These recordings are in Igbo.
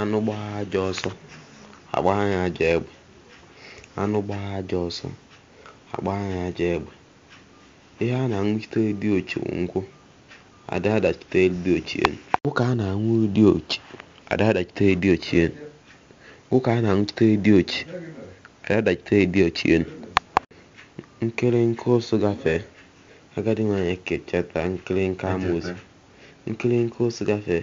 anụ gbaa aja ọsọ agbaa ya aja egbe ihe a na-aṅụchite dị ochi nkwụ ada adachite dị ochi elu a na dị ochi ada adachite dị a na dị ochi ada adachite dị ụsụ gafee agadi nwanyị nke nke ụsụ gafee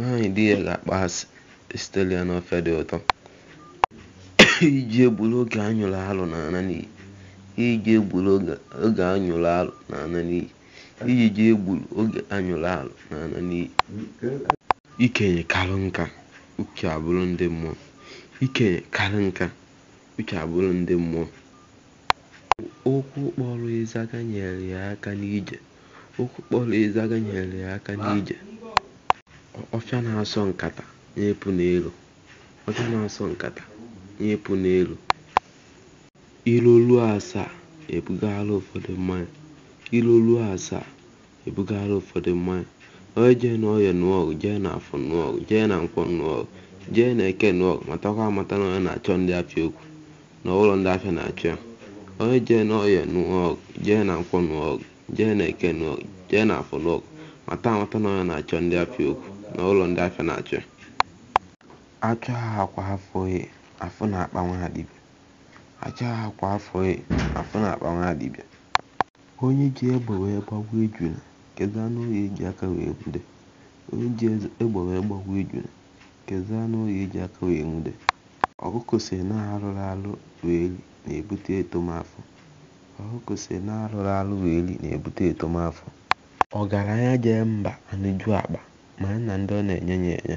nwaanyị di ya ga akpọ asị n'ofe dị ụtọ iji egburu oge anyụrụ alụ na-ana n'iyi alụ na-ana n'iyi iji ji ikenye karụ nka uche abụrụ ndị mmụọ ikenye okwu kpọrọ ịzaga nyere ya nyere ya aka n'ije ọfịa na-asọ nkata na-epu n'elu ọfịa na-asọ nkata na n'elu ilu ruo asaa ebugara ụfọdụ mmanya ilu ruo asaa ebugara ụfọdụ mmanya onye jee na nụọgụ jee na afọ nụọgụ jee na nkwọ nụọgụ jee na eke nụọgụ matakwa amata na onye na-achọ ndị afịa okwu na ụlọ ndị afịa na-achọ ya, onye jee na ọya nụọgụ jee na nkwọ nụọgụ jee na eke nụọgụ jee na afọ nụọgụ mata amata na onye na-achọ ndị afịa okwu na ụlọ ndị afịa na-achị Achọ ha kwa afọ e, afọ e, na akpanwe ha dibịa onye ji egbe wee gbagbuo ejula kedu anụ ọhịa eji e aka wee nwude ọkụkọ si na arụrụ arụ wee li na-ebute etomafọ ọgaranya jee mba anụ ju akpa mara na ndị ọ na-enye ya enye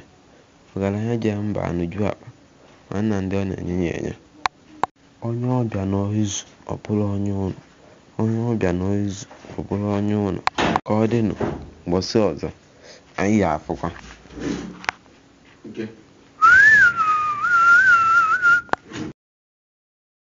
ọgaranya ji mba anụju akpa mara na ndị ọ na-enye ya enye onye ọbịa n'izu ọ bụrụ onye ụnụ onye ọ bụrụ onye ụnụ ka ọ dịnụ mgbọsị ọzọ anyị ya afụkwa